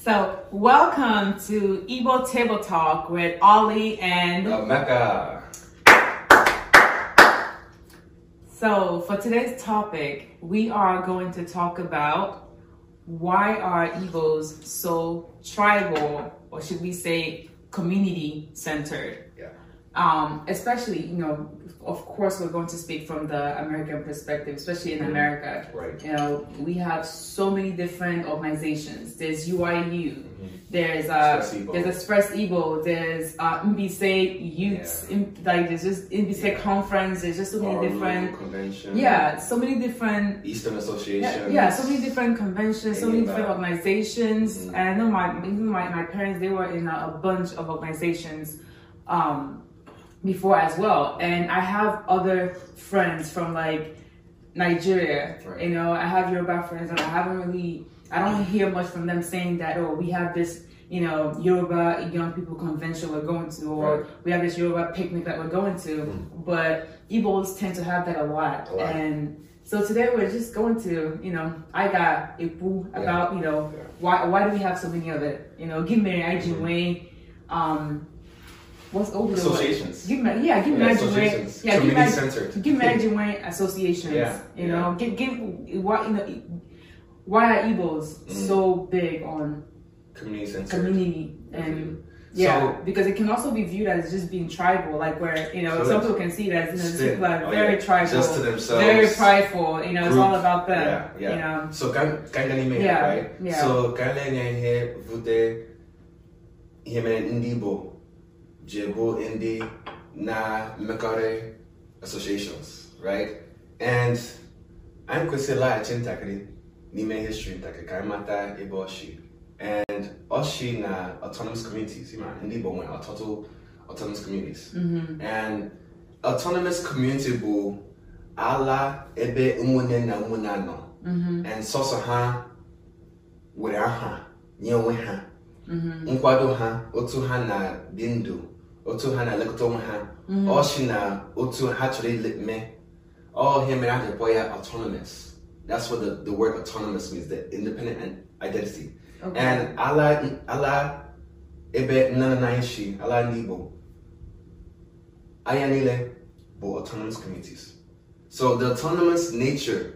So, welcome to Igbo Table Talk with Ollie and uh, Mecca. So, for today's topic, we are going to talk about why are Igbos so tribal, or should we say community centered? Yeah. um, especially you know of course we're going to speak from the american perspective especially in mm-hmm. america right you know we have so many different organizations there's uiu mm-hmm. there's uh Express there's express ebo there's uh mbc youths yeah. in, like there's just mbc yeah. conference there's just so many Arlo different conventions yeah so many different eastern Association. yeah, yeah so many different conventions so many different organizations mm-hmm. and i know my my, my parents they were in a, a bunch of organizations um before as well. And I have other friends from like Nigeria, right. you know, I have Yoruba friends and I haven't really, I don't hear much from them saying that, oh, we have this, you know, Yoruba young people convention we're going to, or right. we have this Yoruba picnic that we're going to. Mm. But Igbos tend to have that a lot. A lot. And so today we're just going to, you know, I got a about, yeah. you know, yeah. why why do we have so many of it? You know, give me an IG mm-hmm. um, what's over the associations. Give yeah, give yeah, marriage yeah, give marriage, centered. marriage associations. Yeah, you know, give give why why are Igbos mm. so big on community centered. community and. Yeah, so, because it can also be viewed as just being tribal, like where you know so people can see that you know, people are oh, very tribal, just to very prideful. You know, it's all about them. Yeah, So kangalime, yeah, right? Yeah. So kangalime Jebo ndị Na Mekare associations, right? And anyị kwesịrị laghachi ntakịrị n'ime history ntakịrị ka anyị mata ebe ọchị and ọchị na autonomous communities ma ndị Igbo nwere ọtụtụ autonomous communities mm-hmm. and autonomous community bụ ala ebe ụmụnne na ụmụnna anọ. Mm-hmm. and ha were aha nye onwe ha mm-hmm. nkwado ha otu ha na dị ndụ otu ha na-elekọta onwe ha mm-hmm. si na otu ha chọrọ mee ọ ihe mere a ji ya autonomous that's what the, the word autonomous means the independent identity okay. and ala ala ebe nna na ishi si ala ndị Igbo anya niile bụ autonomous communities so the autonomous nature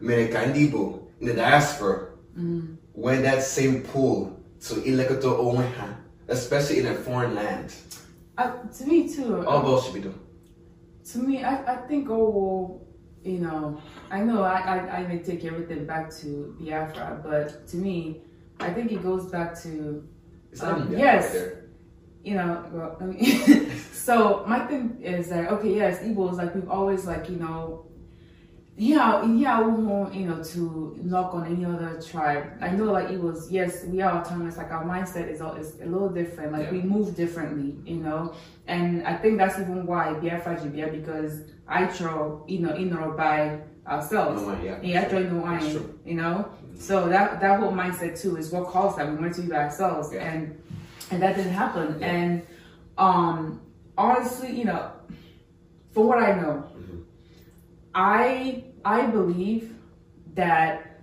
mere ka ndị Igbo in the diaspora mm. that same pull to ilekọta onwe ha especially in a foreign land to me too. All girls should be doing. To me, I, I think oh you know, I know I, I, I may take everything back to Biafra, but to me, I think it goes back to um, yes, right you know. Well, I mean, so my thing is that okay, yes, Igbo is like we've always like you know Ihe ihe awụhụ you know to knock on any other tribe. I know like it was yes we are autonomous like our mindset is is a little different like yeah. we move differently you know and I think that's even why Biafra Jibia because I draw you know in or by ourselves. No, yeah, yeah, I draw no you know. Mm-hmm. So that that whole mindset too is what caused that we wanted to be by ourselves yeah. and and that didn't happen yeah. and um honestly you know from what I know. Mm-hmm I I believe that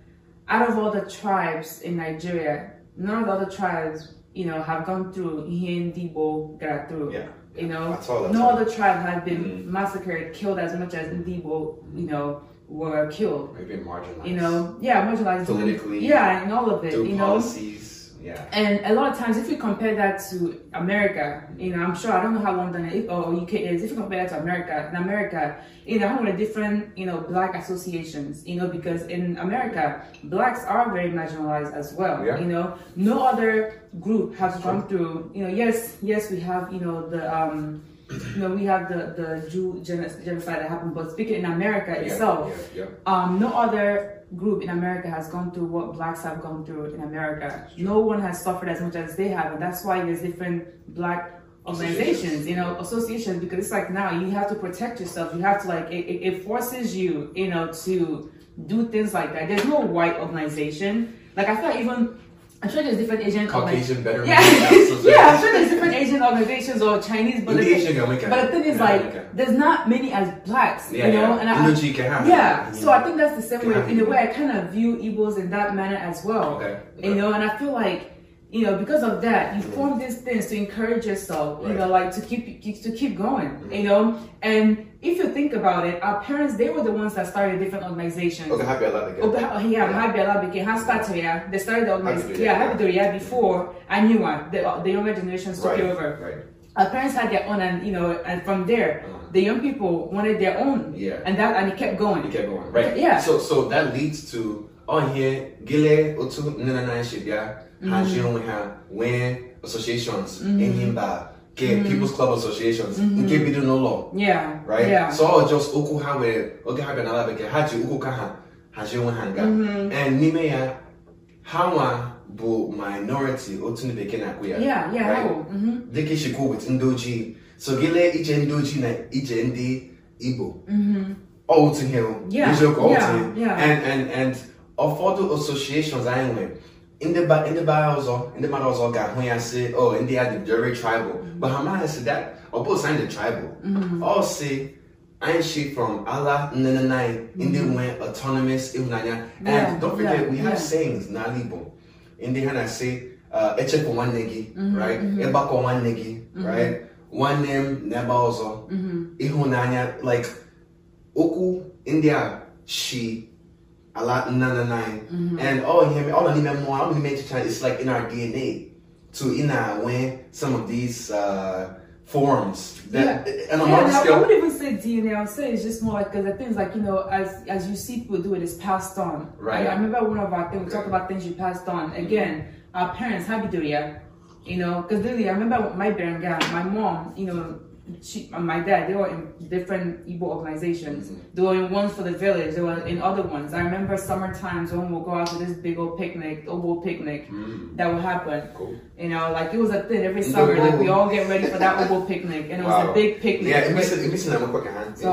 out of all the tribes in Nigeria, none of the other tribes, you know, have gone through Ndibo got through. Yeah. You know, all, no all. other tribe has been mm-hmm. massacred, killed as much as Ndibo, you know, were killed. Or even marginalized. You know, yeah, marginalized politically. Yeah, and all of it. Through you policies. know, Yeah. And a lot of times, if you compare that to America, you know, I'm sure I don't know how London is, or UK is. If you compare that to America, in America, you know, of with different, you know, black associations, you know, because in America, blacks are very marginalized as well. Yeah. You know, no other group has come through. You know, yes, yes, we have, you know, the um, you know, we have the, the Jew genocide that happened, but speaking in America yeah, itself, yeah, yeah. Um, no other group in America has gone through what blacks have gone through in America. No one has suffered as much as they have, and that's why there's different black organizations, you know, associations, because it's like now you have to protect yourself. You have to like, it, it forces you, you know, to do things like that. There's no white organization. Like I feel like even I'm sure there's different Asian Caucasian better. betterment. Yeah, yeah, I'm sure there's different Asian organizations or Chinese, but, the, Asian, thing, but the thing is yeah, like America. there's not many as blacks, yeah, you know. Yeah. And I, Energy can happen. yeah, so I think that's the same way. In a way, I kind of view Igbos in that manner as well. Okay. You know, and I feel like you know, because of that, you form these things to encourage yourself, right. you know, like to keep to keep going, mm-hmm. you know. And if you think about it, our parents they were the ones that started different organizations. Okay, Happy Allah began. Oh, yeah, Happy Allah began. How started yeah? They started the organization. Yeah, Happy yeah, yeah, before I knew one. The, uh, the younger generations took right. over. Right. Our parents had their own, and you know, and from there. Uh-huh. the young people wanted their own. Yeah. And that and it kept going. It kept going. Right. Yeah. So so that leads to ọhie gịlee otu nne na nna anyị si bịa mm-hmm. onwe ha nwee associations mm-hmm. enyi mba mm-hmm. people's club associations nke bidoro n'ụlọ right so ọ just okwu ha were oge ha bịa n'ala bekee ha ji okwu ka ha hazie onwe ha nga and n'ime ya ha nwa bụ minority otu ndị bekee na-akpụ ya dịka ishikwu with ndị so gịlee ije ndị na ije ndị igbo ọ otu ihe eziokwu ọ otu and and and ụfọdụ associations anyị nwere ndị bara ọzọ ndị mmadụ ọzọ ga-ahụ ya sị o oh, ndị ya dị tribal but ha maghị sị that ọ bụ anyị dị tribal mm-hmm. ọ si anyị shi from ala nne Nna anyị mm-hmm. ndị nwe autonomous ịhụnanya and don't forget we have sayings ala Igbo ndị ha na-asị uh, echekwa nwanne gị mm-hmm, right ịgbakọ nwanne gị right nwanne m na ebe ọzọ ịhụnanya like okwu ndị a shi a lot nine nine mm-hmm. and all him all the nime more all the nime it's like in our DNA to in our when some of these uh, forms that yeah. and yeah, scale. I would even say DNA. I say it's just more like because the things like you know as as you see people do it is passed on. Right. Like, I remember one of our things we talk about things you passed on. Mm-hmm. Again, mm-hmm. our parents habiduria, you know, because literally I remember my parents, my mom, you know she and my dad, they were in different Igbo organizations. Mm-hmm. They were in ones for the village, they were in other ones. I remember summer times when we'll go out to this big old picnic, Obo picnic, mm-hmm. that would happen. Cool. You know, like it was a thing every summer, like we all get ready for that Obo picnic. And it wow. was a big picnic. Yeah, in DC, so, in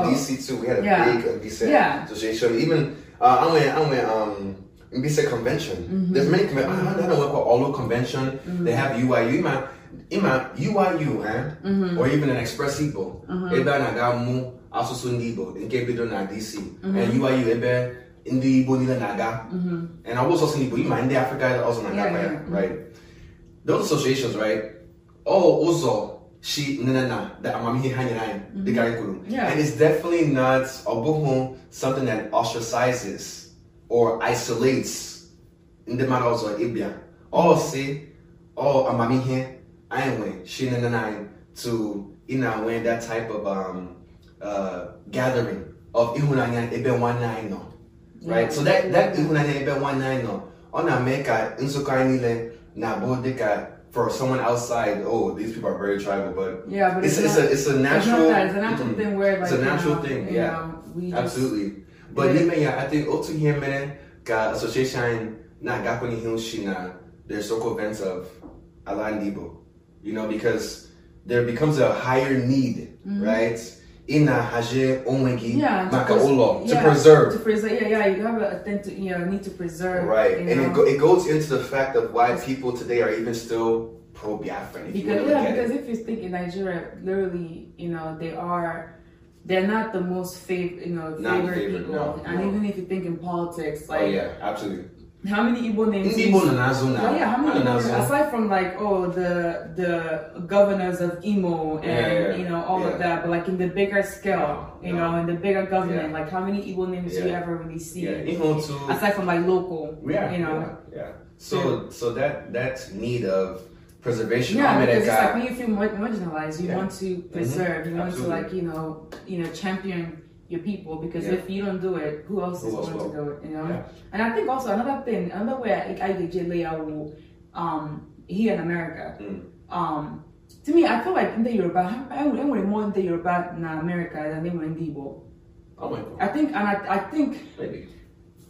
DC too, we had a yeah. big uh, DC yeah. association. Even, uh, i'm went, I went, um, Mbisa convention. Mm-hmm. There's many conventions. I don't know what called Olo convention. Mm-hmm. They have UIU. Man ịma UIU eh mhm. or even an Express Igbo mhm. ebe a na-aga mụ asụsụ ndị Igbo nke bido na DC mhm. and UIU ebe ndị Igbo niile na-aga and ọ bụ sọsọ Igbo ịma ndị Afrịka ọzọ na-aga ya right those associations right ọ ụzọ she no no no the amamihe ha nyere anyị dịka anyị kwuru and it's definitely not ọ bụghị something that ostracizes or isolates ndị mmadụ ọzọ ịbịa ọ si ọ amamihe I ain't went. Sheena and I to you know that type of um, uh, gathering of ihunanya ebe nwanne nọ. Right? So that that ihunanya ebe nwanne nọ ọ na-eme ka nzukọ anyị niile na-abụ for someone outside, oh, these people are very tribal, but yeah, but it's, it's, not, it's a it's a natural it's, it's a natural mm, thing where like, it's a natural know, thing, yeah, know, absolutely. but yeah, yeah, I think otu here man ka association na gakwenye hill shi na their circle events of Alan Debo. you know, because there becomes a higher need, mm-hmm. right? a haje onwegi oh makaolo to preserve. To preserve, yeah, yeah. You have a thing to, you know, need to preserve. Right, and it, go, it goes into the fact of why people today are even still pro Biafran. Because yeah, because it. if you think in Nigeria, literally, you know, they are they're not the most fav- you know, favorite, people. No, and no. even if you think in politics, oh, like oh, yeah, absolutely. How many Igbo names? Igbo used? Nanazuna. Yeah, how many? names? Aside from like oh the the governors of Imo and yeah, yeah, you know all yeah. of that, but like in the bigger scale, you know, in the bigger government, like how many Igbo names do you ever really see? Imo too. Aside from like local, yeah, you know, yeah. So so that that's need of preservation. Yeah, because it's like when you feel marginalized, mm-hmm. you want to preserve, mm-hmm. you want Absolutely. to like you know you know champion your people because yeah. if you don't do it, who else who is going to do it? You know. Yeah. And I think also another thing, another way I, I get layer um here in America. Mm. Um, to me, I feel like in the Yoruba, I enwere more in the Yoruba na America than they were in the Igbo. I think, and I, I think. Maybe.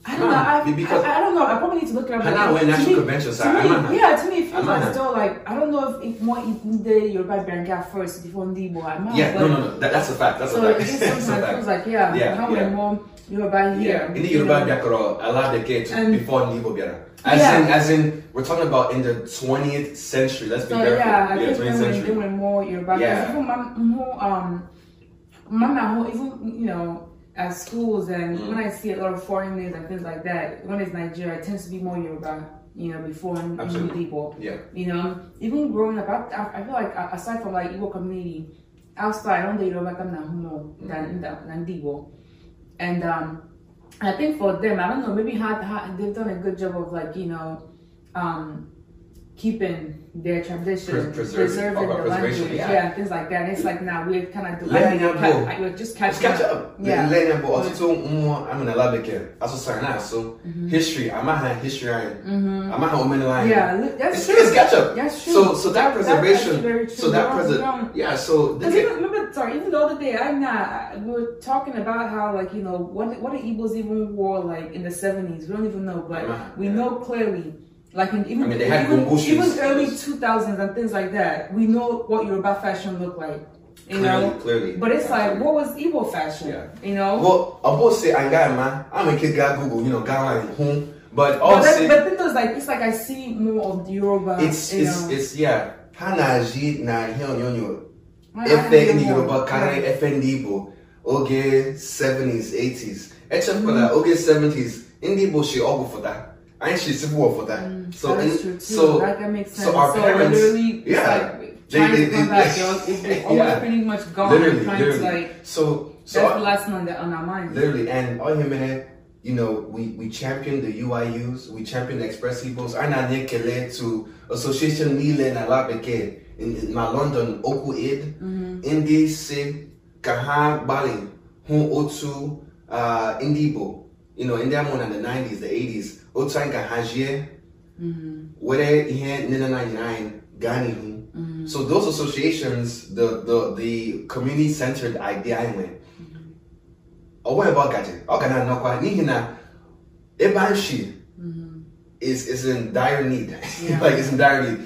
I don't know. I, because I, I, don't know. I probably need to look it up. Hana like, went national me, convention, so me, I'm yeah. To me, it feels like still like I don't know if if more the Yoruba Benga first before Ndibo. I'm yeah, no, no, no. That, that's a fact. That's so a fact. So it sometimes it feels like yeah, yeah how yeah. more Yoruba here. Yeah. In the Yoruba Biakara, allow the kids before Ndibo Biara. As yeah. in, as in, we're talking about in the 20th century. Let's be so, careful. Yeah, I yeah, think 20th when century. They were more Yoruba. Yeah. Even, um, Mama, even you know at schools and mm. when I see a lot of foreign names and things like that, when it's Nigeria, it tends to be more Yoruba, you know, before Absolutely. new people. Yeah. You know, even growing up, I, I feel like aside from like Igbo community, outside, I don't dey Yoruba come humo mm-hmm. than than Igbo. And um, I think for them, I don't know, maybe how, how, they've done a good job of like, you know, um, keeping their tradition, Pres- preserving, preserving oh, the language, yeah. yeah. things like that. And it's like now we're kind of doing. Let them go. Like, we're just catching catch up. up. Yeah. Let them go. Also, more. I'm in a lab Also, sign out. So mm-hmm. history. I'm not history. Mm-hmm. I'm not women line. Yeah, that's true. It's catch up. That's true. So, so that preservation. so that preservation. Yeah. So even, remember, sorry, even the other day, I'm not. We were talking about how like you know what what the Igbos even wore like in the 70s. We don't even know, but we know clearly Like in, even I mean, they had even, even early 2000s and things like that. We know what Yoruba fashion looked like. You clearly, know, clearly. But it's like, what was Igbo fashion? Yeah. You know. Well, I both say I got I'm a kid, got Google. You know, got like home. But also, but, but then there's like it's like I see more of the Yoruba. It's it's know. it's yeah. Hanaji na hionyonyo. Efe ndi Yoruba kare efe ndi Igbo. Oge 70s, 80s. Except for that, oge 70s, ndi Igbo shi ọgwụ fụta. I ain't suitable for that. Mm, so that is true too. so like, that makes sense. So our so parents, literally, yeah, like, they, they, they, they they they they they they pretty much gone. Literally, literally. like so. So that's the last one that on our mind. Literally, and they they they you know, we, we champion the UIUs, we champion the Express they they they to Association Nile they they in my London, Oku they mm-hmm. Indi they Kaha Bali, Hun Otu, uh, Indibo. you know ndị amụrụ na the 90s the 80s otu anyị ka hazie were ihe nne na nna anyị gaa n'ihu so those associations the the the community centered idea anyị nwere ọ nweghị ebe ọ gaji ọ ga na-anọkwa n'ihi na ebe is is in dire need yeah. like it's in dire need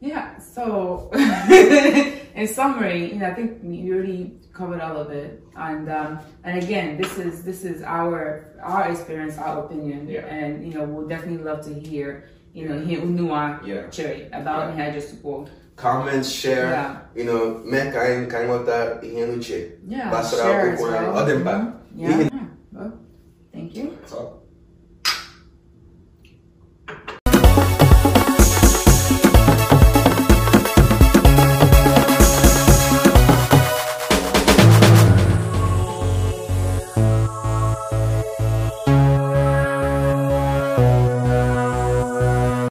yeah so in summary you know, i think we really covered all of it and um, and again this is this is our our experience our opinion yeah. and you know we'll definitely love to hear you know hear unua yeah. cherry about yeah. just support comments share yeah. you know me kain ihe nuche yeah, basara okwu na ọdịmkpa